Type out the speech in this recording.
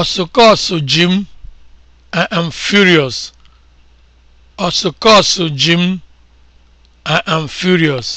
Ọsụkọsụ ji m, am furious.